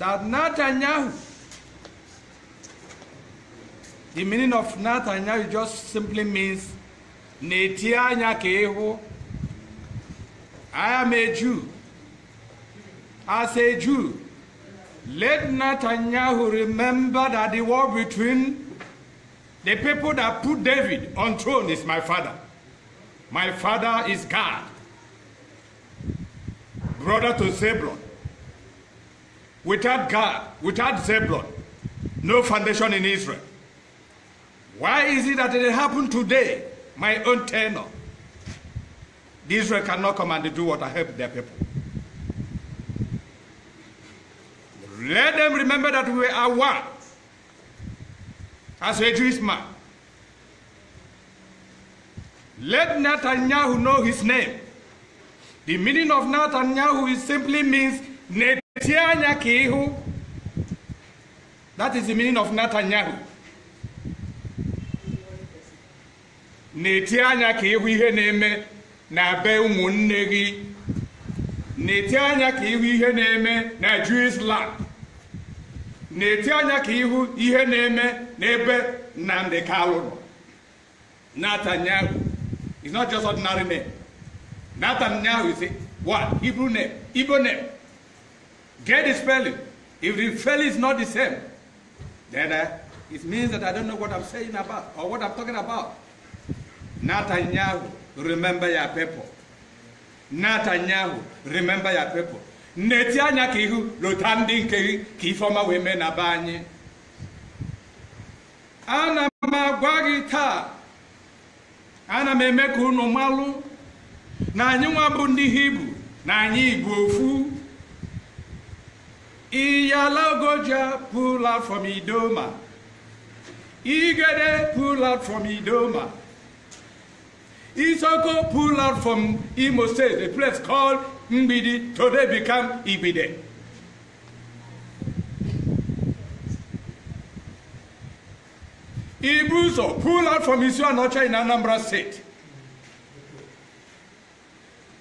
that Netanyahu, the meaning of Netanyahu just simply means I am a Jew. As a Jew, let Netanyahu remember that the war between the people that put David on throne is my father. My father is God, brother to Zebulon without God, without Zebulon, no foundation in Israel. Why is it that it happened today, my own tenor? Israel cannot come and do what I help their people. Let them remember that we are one as a Jewish man. Let Netanyahu know his name. The meaning of Netanyahu is simply means tie anya ka ịhụ that is the meaning of Netanyahu na-eti anya ka ịhụ ihe na-eme na be ụmụnne gị na-eti anya ka ịhụ ihe na-eme na Jewish land na-eti anya ka ịhụ ihe na-eme n'ebe Nnamdi Kalu nọ Netanyahu is not just ordinary name Netanyahu is a what Hebrew name Igbo name Get the spelling. If the spelling is not the same, then uh, it means that I don't know what I'm saying about or what I'm talking about. Netanyahu, remember your people. Netanyahu, remember your people. Netanyahu, lotandi nkehi, kifoma weme na Ana magwa gị ana m eme ka na anyị bundi hibu. na anyị igbo Iyalagoja pull out from Idoma. Igede pull out from Idoma. Isoko pull out from Imo State, a place called Mbidi, today become Ibide. Ibuzo pull out from Isuanocha in Anambra State.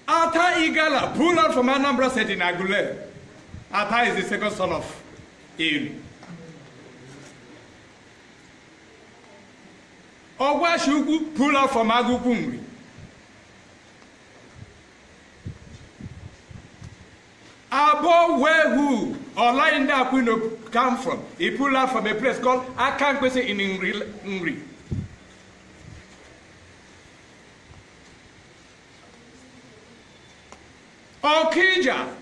Ata Igala pull out from Anambra State in Agulere. Apa is the second son of Eru. Ogwashukwu pull out from Agukumri. Abo who or Linda Aquino come from. He pull out from a place called Akankwese in Ngri. Okija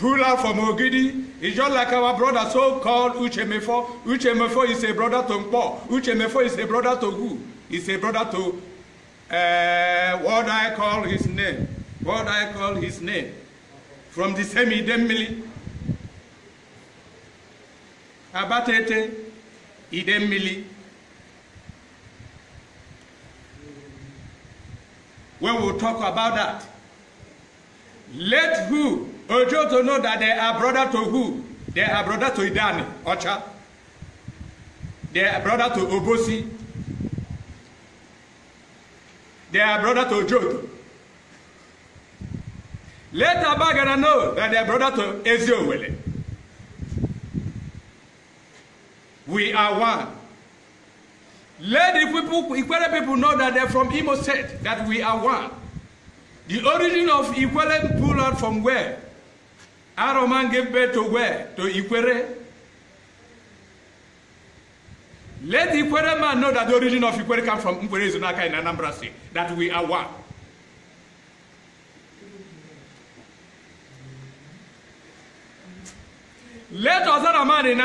Pula from Ogidi is just like our brother so-called Uche Uche Mefo is a brother to Mpo. Mefo is a brother to He's a brother to uh, what I call his name. What I call his name. From the same Idemili. Abatete Idemili. When we will talk about that. Let who Ojo to know that they are brother to who? They are brother to Idani, Ocha. They are brother to Obosi. They are brother to Ojoto. Let Bagana know that they are brother to Eziowele. We are one. Let the people, Ikwele people know that they're from Imo State, that we are one. The origin of Ikwele people are from where? aro mange be to we to Ikwere. Let the Ikwere man know that the origin of Ikwere comes from Mkwere Izunaka in Anambra State, that we are one. Let Ozara man in,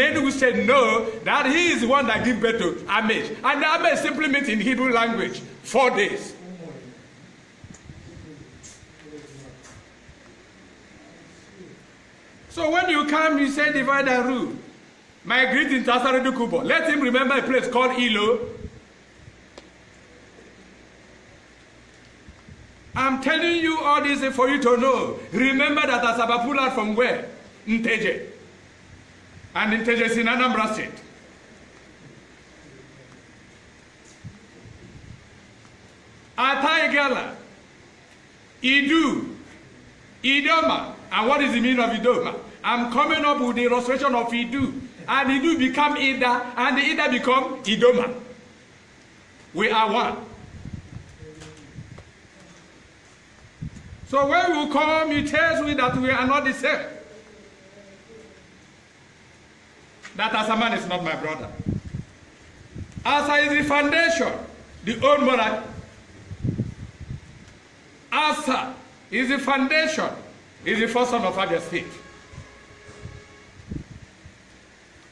in Enugu State no that he is the one that gives birth to Amish. And Amish simply means in Hebrew language, four days. So when you come, you say divide and rule. My greeting to Asaredu Kubo. Let him remember a place called Ilo. I'm telling you all this for you to know. Remember that Asabapula from where? Nteje. And Nteje is in Anambra State. Ataigala, Idu, Idoma, And what is the meaning of Idoma? I'm coming up with the illustration of Idu. And Idu become Ida, and the Ida become Idoma. We are one. So when you come, you tells me that we are not the same. That man is not my brother. Asa is the foundation, the old monarchy. Asa is the foundation is the first son of Abia State.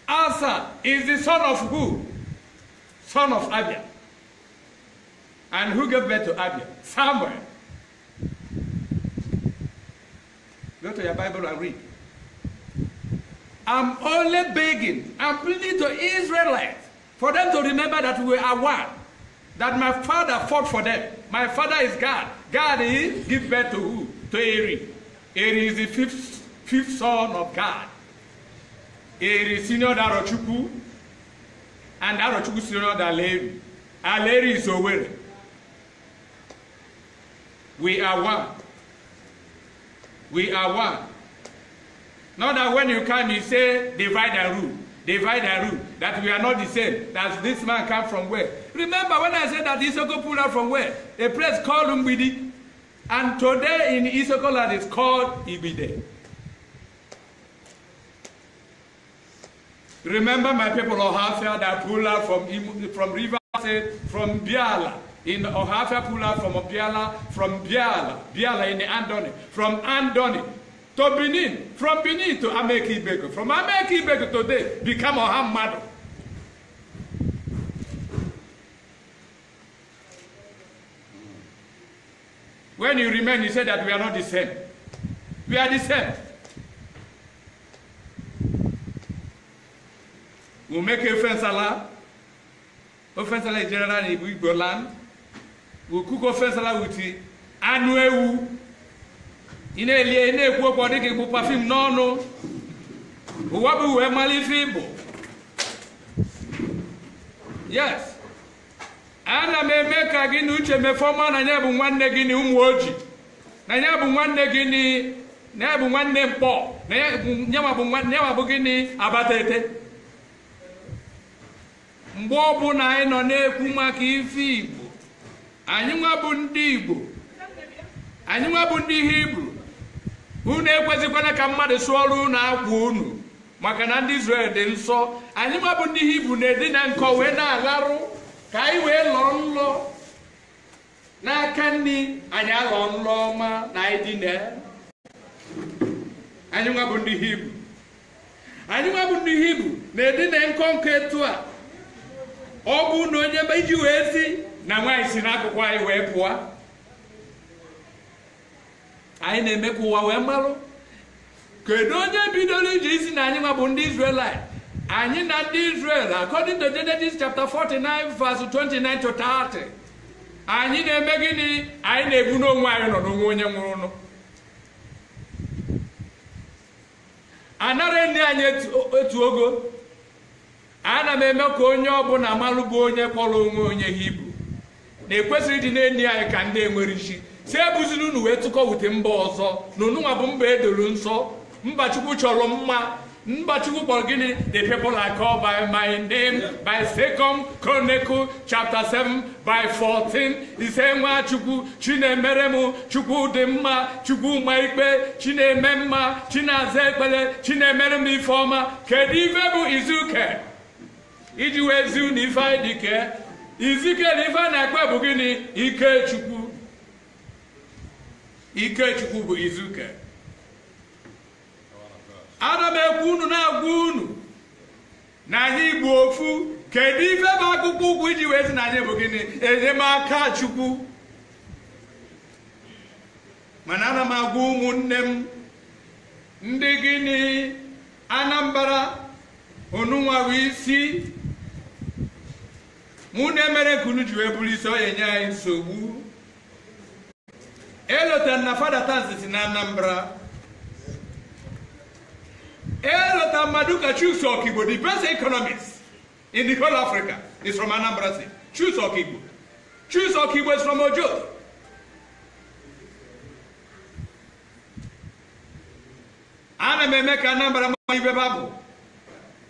Asa is the son of who? Son of Abia. And who gave birth to Abia? Samuel. Go to your Bible and read. I'm only begging, I'm pleading to Israelites for them to remember that we are one. That my father fought for them. My father is God. God is give birth to who? To Eri. It is the fifth, fifth son of God. It is senior Darochukwu and Darochukwu senior Daleri. Aleri is aware. We are one. We are one. Not that when you come, you say, divide and rule, divide and rule, that we are not the same, that this man come from where. Remember when I said that Isoko pulled out from where? A place called Umbidi, And today in Isoko land, it's called Ibide. Remember my people Ohafia that pulled out from, from River from Biala. In Ohafia pulled out from Biala, from Biala, Biala in Andoni, from Andoni to Benin, from Benin to Ameki Ibeko, from Ameki Ibeko today become Ohamado. When you remain, you say that we are not the same. We are the same. We make offense Allah. Offense Allah is general in Igbo land. We cook offense Allah with it. Anụ ewu. Ị na-elie, ị na-ekwu okwu ọ dịka ịkpụ pafim n'ọnụ. Ụwa bụ uwe mmalite Igbo. Yes. ana m eme ka gị na uche mefee ọma na ya bụ nwanne gị na ụmụ oji na ya bụ nwanne gị na ya bụ nwanne mkpọ na ya bụ gịnị abata ete mgbe na anyị nọ na-ekwu maka ife igbo anyị nwa ndị igbo anyị nwa ndị ihe hibru unu ekwezikwana ka mmadụ sụọ ọrụ na akwa unu maka na ndị Izrel dị nsọ anyị nwa ndị ihe hibru na-edina nkọ wee na-agharụ ka anyị wee lọọ nlọ n'aka nri anyị alọ nlọ ọma na anyị dị na anyị nwa bụ ndị hibru anyị nwa bụ ndị hibru na-edina nkọnkọ etu a ọ bụ na onye iji wee si na nwaanyị si n'akụkụ anyị wee pụọ anyị na-eme ka ụwa wee marụ kedu onye bidoro iji isi na anyị nwa bụ ndị Izrelite anyị na ndị Israel according to Genesis chapter 49 verse 29 to 30 anyị na-eme gịnị anyị na-egbu n'onwe anyị nọ n'onwe onye nwụrụ anara nne anyị etu ogo ana m eme ka onye ọbụla malụ bụ onye kpọrọ onwe onye hibru na ekwesịrị ịdị na-enyi anyị ka ndị enwere isi si ebuziri unu wee tụkọwute mba ọzọ na onunwa bụ mba edoro nsọ mba chukwu chọrọ mma Mbachukwu kpọrọ gịnị the people are called by my name by Second Chronicle chapter 7 by 14 ise nwa chukwu chinemere m chukwu dị mma chukwu ma ikpe na-eme mma chinaza ekpere chinemere m ife ọma kedụ ife bụ izuke iji wee zi n'ife dike izike na ife a ike ekpe ike gịnị bụ izuke ana m ekwu unu na-agwa unu na anyị igbu ofu kedu ife bụ akpụkpọ ụkwụ iji wee sị na anyị bụ gịnị enyemaka chukwu mana ana m agwa ụmụnne m ndị gịnị anambra onunwa isi mụ na emere nke unu ji wee bụrụ isi ọ enye anyị nsogbu elotara na fada tansi si na anambra Elota Maduka Chuks Okigbo, the best economist in the whole Africa, is from Anambra State. Chuks Okigbo. Chuks Okigbo is from Ojo. ana m eme ka Anambra ma ibe babụ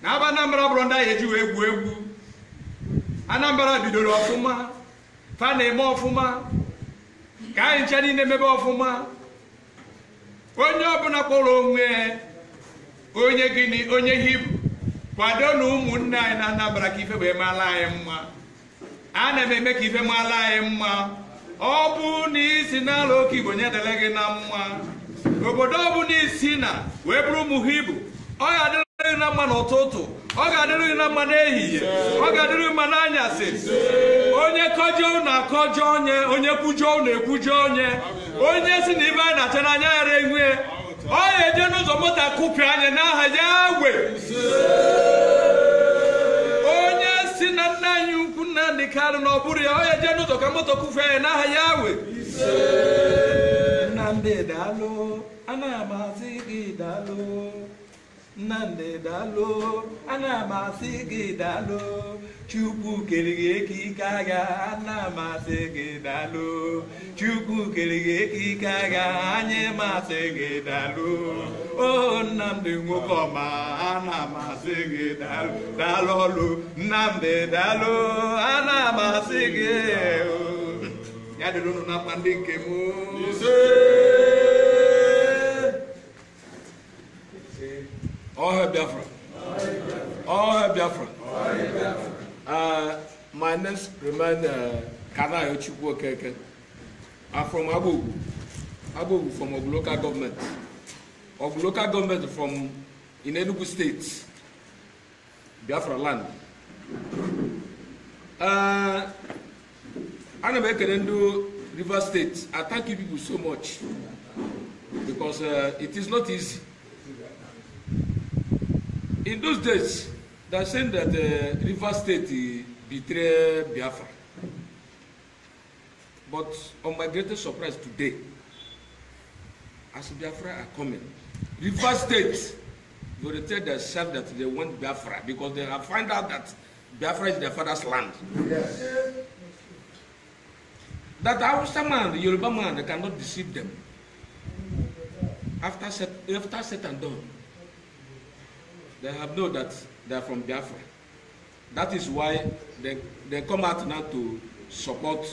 na aba Anambra bụrụ ndị anyị ejiwe egwu egwu Anambra bidoro ọfụma fa na-eme ọfụma ka anyị ncha niile mebe ọfụma onye ọbụla kpọrọ onwe onye gịnị onye hibru kwado na ụmụnne anyị na anabara ka ife wee maala anyị mma na m eme ka ife maala anyị mma ọ bụ na isi n'ala oke igbo nyedele gị na mma obodo ọ bụ na isi na wee bụrụ ụmụ hibru ọ ga-adịrị na mma n'ụtụtụ ọ ga-adịrị gị na mma n'ehihie ọ ga-adịrị gị mma n'anyasị onye kọjọ unu akọjọ onye onye kwujọ unu ekwujọ onye onye si na ibe anyị na-acha n'anya ghara enwe onye je n'ụzọ moto akụpịa anya n'aha ya gwe onye si na nna anyị ukwu nna karụ na ọ ya onye je n'ụzọ ka moto kụfee anya n'aha ya we nnamdị daalụ anaghị m azị gị daalụ nnamdị daalụ ana m asị gị dalụ chukwu kere gị ekike agha ana m asị gị daalụ chukwu kere gị ekike agha anyị m gị dalụ o nnamdị nwoke ọma ana m asị gị daalụ daalụ ọlụ nnamdị dalụ ana m asị gị ya dịrị unu na mkpa ndị nke m All hail Biafra. All hail Biafra. All hail Biafra. Uh, my name is uh, Kanayo Chukwokeke. I'm from Abu Abu from a local government. Of local government from in Enugu State, Biafra land. I'm uh, m ekele ndị Rivers State. I thank you people so much because uh, it is not easy. in those days, they are saying that uh, River State betrayed Biafra. But on my greatest surprise today, as Biafra are coming, River State will tell themselves that they want Biafra because they have find out that Biafra is their father's land. Yes. That Hausa man, the Yoruba man, they cannot deceive them. After set, after set and done, they have know that they are from Biafra. That is why they, they come out now to support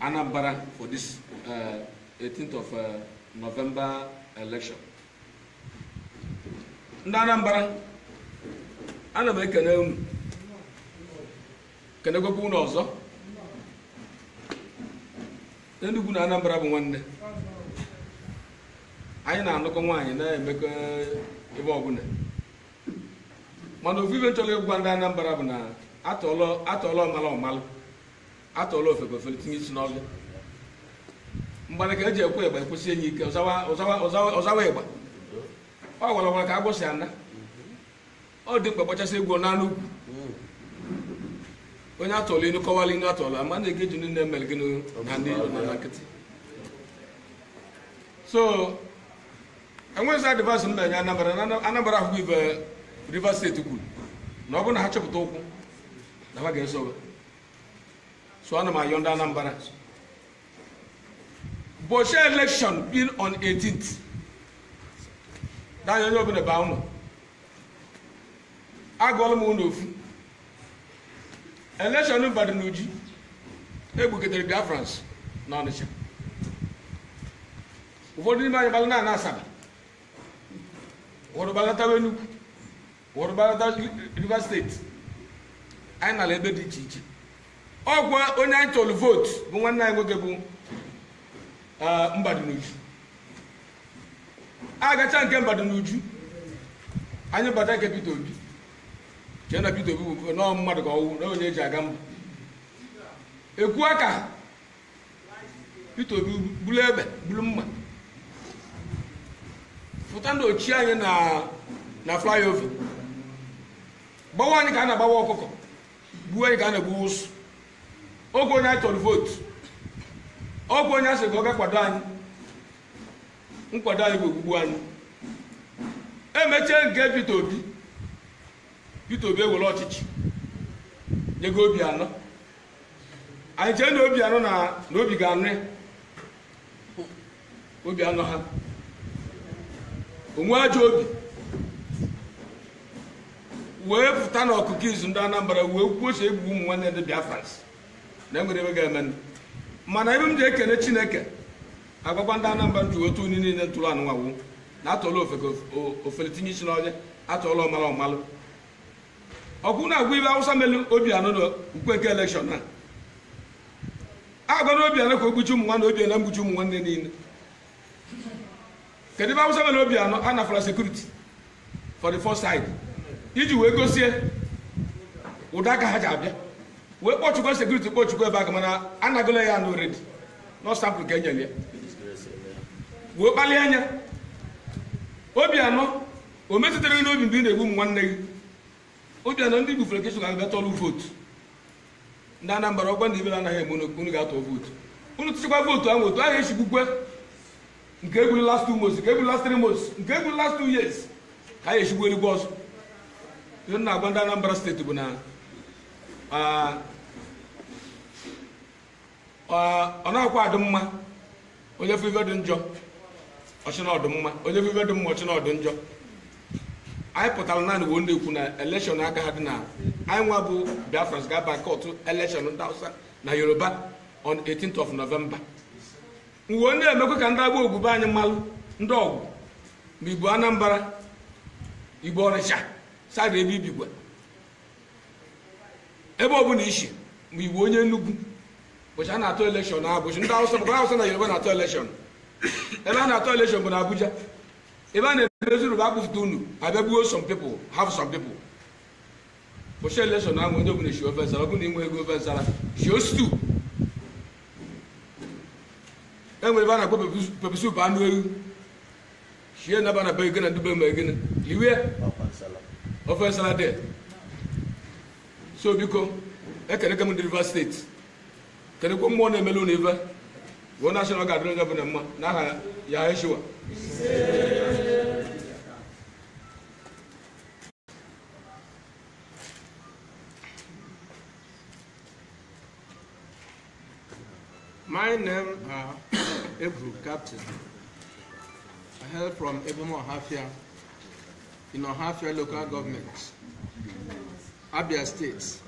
Anambra for this uh, 18th of uh, November election. Ndị Anambra, ana m ekene unu, kenegokwa unu ọzọ. Enugu na Anambra bụ nwanne. Anyị na-anụkọ nwaanyị na-emekọ ebe ọbụla mana ofufe nchọrọ ịgwa ndị Anambra bụ na atọọla ọmala ọmalụ atọọla ofefe ofele tinye isi n'ọlụ mgbana ka eji ekwe ịgba ekwesị enyi ike ọzawa ịgba ọ gwara gwara ka agbụsị ana ọ dị mkpa kpachasị egwu n'anụ ugwu onye atọọla inu kọwala inu atọọla ama na-ege ji nne mere gị na ndị na nkịtị so enweghịzi adịvasị m na-enye anambra na anambra ahụhụ ibe rivers steeti kwuru na ọ bụrụ na ha chọpụta ụkwụ na ha ga-esobe so ana m ayọ ndị anambra bochi election bin on 18th danya onye ọbụla baa ụlọ agụọla m ụlọ ofu election Ibadan na Uji Biafrans na Ọnịcha ụfọdụ n'ime anyị gbalụ na Asaba wọrụbalata wenu wọrụbalata rivers steeti anyị nara ebe dị iche iche ọgwa onye anyị chọrọ vootu bụ nwanne anyị nwoke bụ A agacha nke Mbadunuju anyị bata nke Pito Obi chee na Peter Obi bụ nọọ mmadụ ka ọwụ na onye eji aga mba Obi bulu ebe, bulu mma pụta na ochie anyị na flyover gbawa anyị ka a na-agbawa ọkụkọ gbuo anyị ka a na-egbuwa ụsụ oge onye anyị tọrọ vootu ọgwụ onye asị ka ọ ga-akwado anyị nkwado anyị bụ ogbugbu anyị emechie nke Peter Obi Peter Obi ewere ọchịchị nyego obi anọ anyị chee na obi anọ na obi ga-anụ obi anọ ha onwe ajọ obi wee pụta na ọkụkọ izu ndị Anambra wee kwuo oche egbu ụmụ nwanne ndị Biafra na enwere ebe ga-eme mana ebe m ji ekene Chineke agwakwa ndị Anambra ji otu onye niile ntụrụ anụnwawu na atọla ofele tinye isi n'ọhịa atọla ọmara ọmalụ ọ na agwa ibe awụsa melu obi anọ na ukwe nke elekshọn a agwa na obi anọ ka o gbuchi ụmụ nwanne obi ena mgbuchi ụmụ nwanne niile kedu ebe awụsa mere obi anọ a nafara sekuriti for the first side iji wee gosie ụda ka ha ji abịa wee kpọchukwa sekuriti kpọchukwa ebe aka mana anagola ya anụ redi nọsampụl ka enyere ya wee kpalie anya obi anọ o metụtara gị n'obi mgbe ị na-egbu m nwanne gị obi anọ ndị gbufere kesu ga-abịa tọlụ vootu ndị Anambra ọgwa ndị ibere anaghị eme n'okpuru ga-atọ vootu unu tụchakwa vootu ahụ otu ahụ esigbukwe nke egwuru last two months nke egwuru last three months nke egwuru last two years ka anyị echigbu erigwe ọzọ ihe m na-agwa ndị Anambra steeti bụ na ọ na-akwa adị mma onye fụ dị njọ ọchịna ọdụ mma onye fụ dị mma ọchịna ọdụ njọ anyị pụtara naanị bụ ndị ekwu na elekshọn aka ha dị na anyị nwa bụ Biafra ga-aba kọtụ elekshọn ndị Hausa na Yoruba on 18th of November uwe na-emekwa ka ndị agba ogwube anyị mmalụ ndị ọgwụ ma igbo anambra igbo Ọrịcha sara ebe ibigwa ebe ọ bụla ishi ma igbo onye nnukwu bụcha a na-atụ elekshọn abụchi ndị awụsa maka awụsa na yoruba na-atụ elekshọn ebe a na-atụ elekshọn bụ na abuja ebe a na-emezuru bụ akpụfụta unu abịa gbuo some people have some people bụcha elekshọn ahụ onye na shi ofe nsara na inwe ego ofe nsara shi ostu enwere ebe a na-akpọ pepisup anụ na bana be gịnị dube ma gịnị liwe ofe nsala de so biko ekeneke m ndị rivers steeti kenekwe mmụọ na-emelu na ive wee nashọn ọ ga-adịrị n'aha ya eshiwa My name are uh, Ebru, captain. I hail from Ebemo Ohafia in Ohafia local government, Abia State.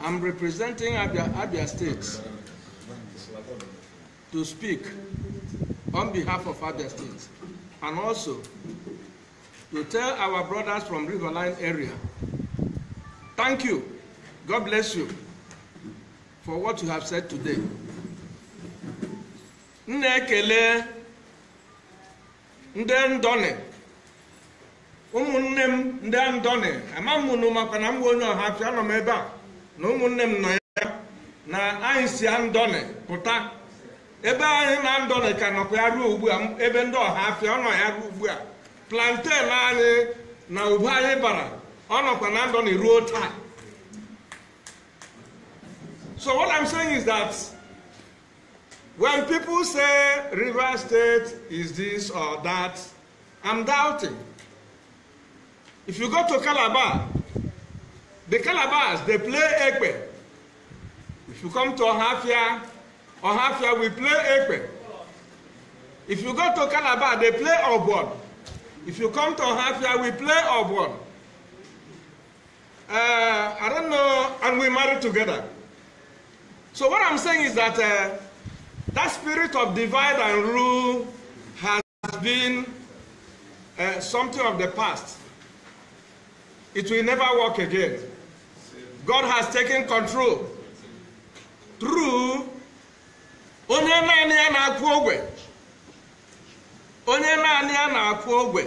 I'm representing Abia, Abia State to speak on behalf of Abia State and also to tell our brothers from Riverline area, thank you, God bless you for what you have said today. m na-ekele ndị ndọnị ụmụnne m ndị ndọnị ama m nụ maka na m bụ onye ọha afịa nọ m ebe a na ụmụnne m nọ ya na anyị si andọnị pụta ebe anyị na ndọnị ka nọkwa ya ruo ugbu ebe ndị ọha ọnọ ya ruo ugbu a planten anyị na ube anyị bara ọ nọkwa na ndọnị ruo taa so what I'm saying is that. When people say River State is this or that, I'm doubting. If you go to Calabar, the Calabars, they play Ekpe. If you come to Ohafia, Ohafia, we play Ekpe. If you go to Calabar, they play Obon. If you come to Ohafia, we play Obon. Uh, I don't know, and we marry together. So what I'm saying is that uh, That spirit of divide and rule has been uh, something of the past. It will never work again. God has taken control through onye naanị ya na-akwụ ogwe onye naanị ya na-akwụ ogwe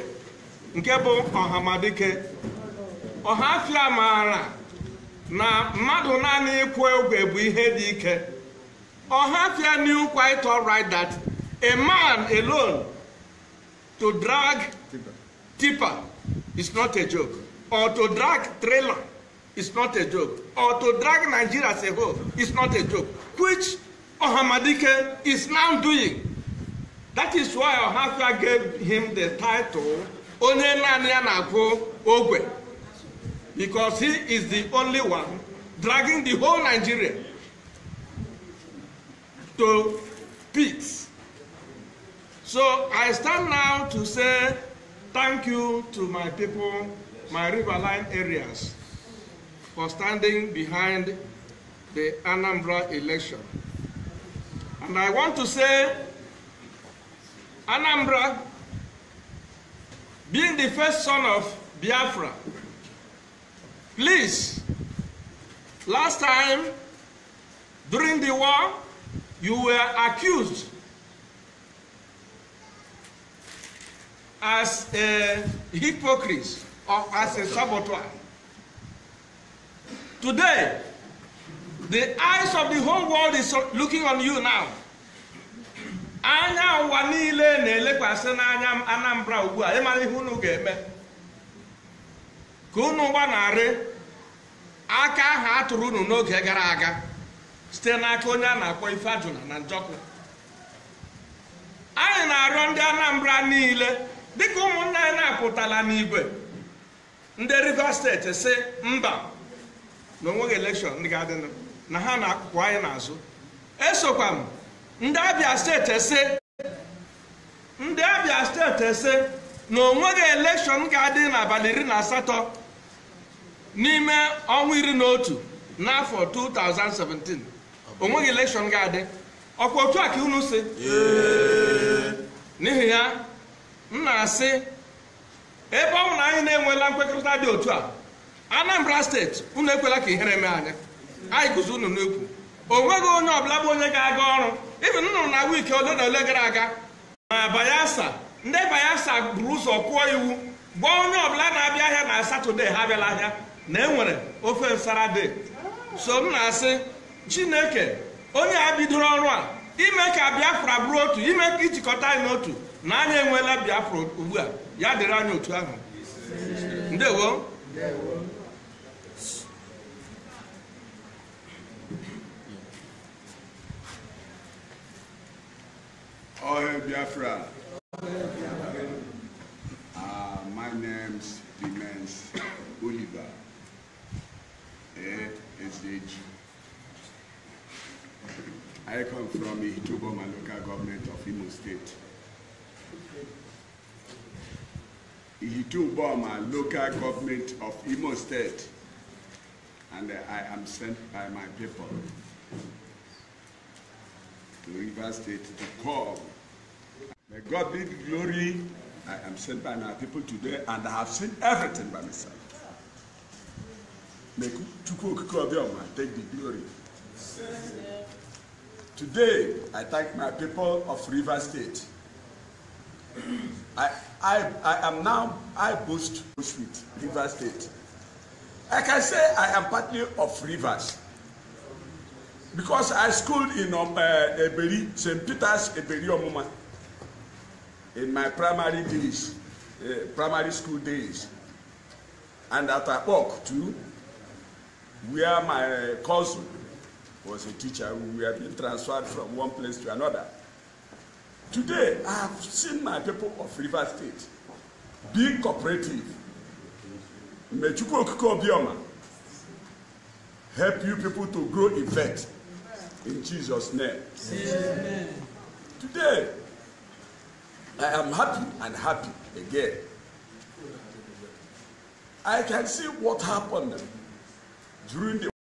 nke bụ ọhamadike ọhafia maara na mmadụ naanị ịkwụ ogwe bụ ihe dị ike Ohatia knew quite all right that a man alone to drag tipper is not a joke, or to drag trailer is not a joke, or to drag Nigeria as a whole is not a joke, which Ohamadike is now doing. That is why Ohafia gave him the title Onenanyanako Naanị Ogwe because he is the only one dragging the whole Nigeria to pigs. So I stand now to say thank you to my people, my riverline areas, for standing behind the Anambra election. And I want to say Anambra, being the first son of Biafra, please, last time during the war, you were accused as a hypocrite or as a saboteur. Today, the eyes of the whole world is looking on you now. anya ụwa niile na-elekwasị n'anya Anambra ugbu a ịmara ihe unu ga-eme ka unu gbanarị aka ahụ a tụrụ unu n'oge gara aga site n'aka onye a na-akpọ ife na njọkụ anyị na-arịọ ndị anambra niile dịka ụmụnne anyị na-apụtala n'igwe ndị rivers steeti si mba na onweghị elekshọn ndị ga-adịnụ na ha na-akụkụ anyị n'azụ esokwa m ndị abịa steeti si ndị abịa steeti si na onweghị elekshọn ga-adị n'abalị iri na asatọ n'ime ọnwa iri na otu n'afọ 2017 onweghị elekshọn ga-adị ọkwa otu a ka unu si n'ihi ya m na-asị ebe ọ bụ na anyị na-enweela nkwekọrịta dị otu a anambra steeti unu ekwela ka ihere mee anya anyị guzo unu n'ekwu onweghị onye ọbụla bụ onye ga-aga ọrụ ibi nnụrụ na wiiki ole na ole gara aga ma bayelsa ndị bayelsa buru ụzọ kụọ iwu gwa onye ọbụla na-abịa ahịa na satọde ha abịala ahịa na enwere ofe nsara de so m na-asị chineke onye a bidoro ọrụ a ime ka biafra bụrụ otu ime ka ijikọta anyị n'otu na anyị enweela biafra ugbu a ya dịrị anyị otu ahụ ndewo Ohe Biafra. Ah, Oliver. I come from Ituboma local government of Imo State. Ituboma local government of Imo State. And I am sent by my people to River State to come. May God be the glory. I am sent by my people today and I have seen everything by myself. May Chukwu take the glory. Today, I thank my people of River State. I, I, I am now, I boost with River State. I can say I am partly of Rivers because I schooled in um, uh, Eberi, St. Peter's Eberi Omuma in my primary days, uh, primary school days, and at Apok too, where my cousin was a teacher who had been transferred from one place to another. Today, I have seen my people of River State being cooperative. May Chukwokiko help you people to grow in faith. In Jesus' name. Amen. Today, I am happy and happy again. I can see what happened during the